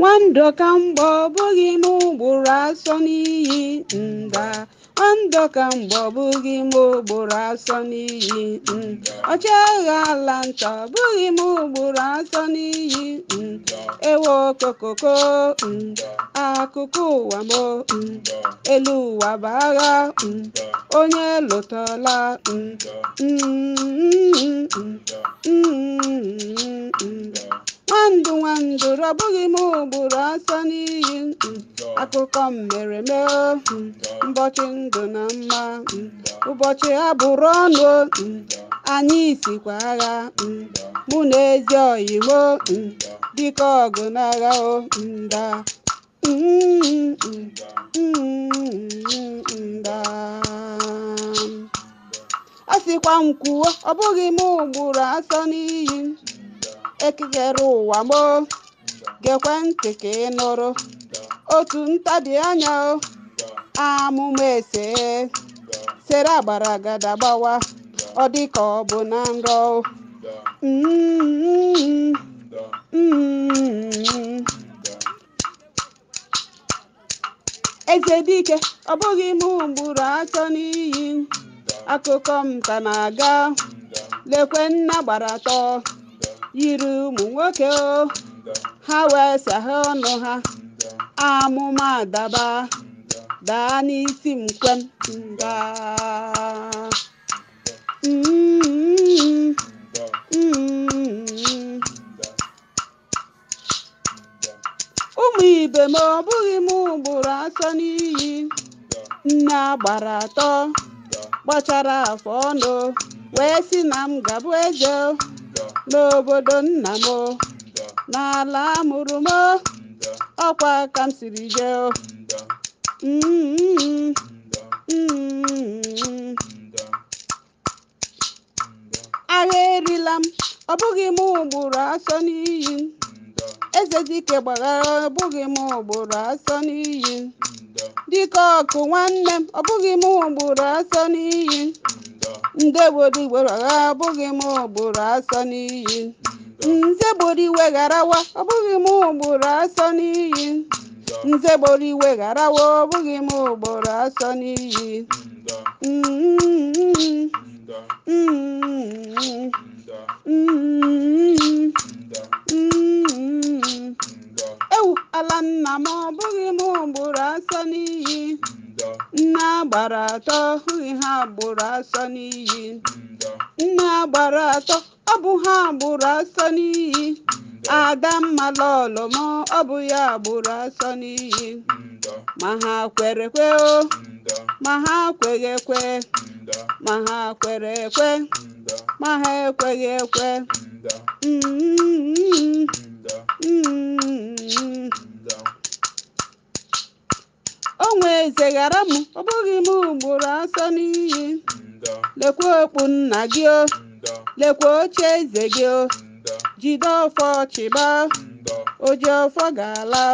nwandọka mgbe ọ bụghị m ụgbụrụ asọ n'iyi nda nwandọka mgbe ọ bụghị m ụgbụrụ asọ n'iyi ọchịagha ala nta ọ bụghị m ụgbụrụ asọ n'iyi ewe okokoko akụkụ ụwa m elu ụwa bụ agha onye lụtala mm, mm, mm, mm nwandụ nwandụ rọbụghị m ugboro asa n'iyi akụkọ mmere mee mbọchị ndụ na mma ụbọchị ha bụrụ ọnụ anyị isikwa agha mụ na ezi oyimo dịka ọgụ n'agha o nda a m kwuo ọ bụghị m ugboro atọ n'iyi ekigere ụwa mo gekwe ntị ka ị nụrụ otu ntabi anya amụma ese sere agbara agada gbawa ọ dị ka ọ bụ na nrọ mm-hmm. eze dike ọ bụghị m gburu atọ n'iyi akụkọ m ka na-aga lekwe nna gbara atọ yiri ụmụ nwoke ha wee saha ọnụ ha amụma adaba daa n'isi nkwem nga mm-hmm. ụmụ ibe ma ọ bụghị m gburu asọ n'iyi nne agbara atọ gbachara afọ ọnụ wee sị na m gabụ eze n'obodo nna m n'ala amụrụ m ọkwa ka m siri jee mm-hmm. Mm-hmm. agha erila m ọ bụghị m ugboro asọ n'iyi eze dike gbaghara ọ bụghị m ugboro asọ n'iyi dike ọkụ nwanne m ọ bụghị m ugboro asọ n'iyi ndebori weghara abụghị m ụgbụrụ asọ n'iyi nze iwe ọbụghị m ugboro asọ n'iyi nze gboro iwe gharawa ọbụghị m ugboro asọ n'iyi ewu ala nna m ọbụghị m ụgbụrụ asọ n'iyi nne agbara atọ ọhụghị ha agbụrụ asọ n'iyi nne agbara atọ ọ bụ ha agbụrụ asọ n'iyi adamma lọlọ m ọ bụ ya agbụrụ asọ n'iyi ma ha kwere kwe o ma ha kweghị ekwe ma ha kwere ekwe ma ha ekweghị ekwe nwe eze ghara m ọ bụghị m ugboro asọ n'iyi lekwa okpu nna gị o lekwa oche eze gị o jide ọfọ chịba oji ọfọ ga-ala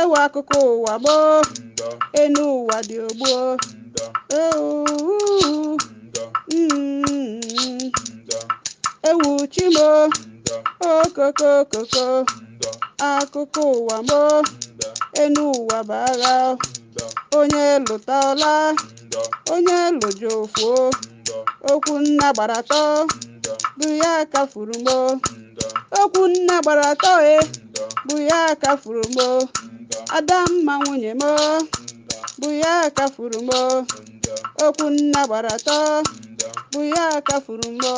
ewe akụkọ ụwa gboo enu ụwa dị ogbuo mm. ewu chimo okokokoko akụkọ ụwa gboo enu ụwa bụ agha onye lụtala onye lụjufuo okwu nna gbara atọ bụ ya furu mo okwu nna gbara atọ e bụ ya kafuru mo adamma nwunye m, bụ ya furu mo okwu nna gbara atọ bụ ya kafuru mo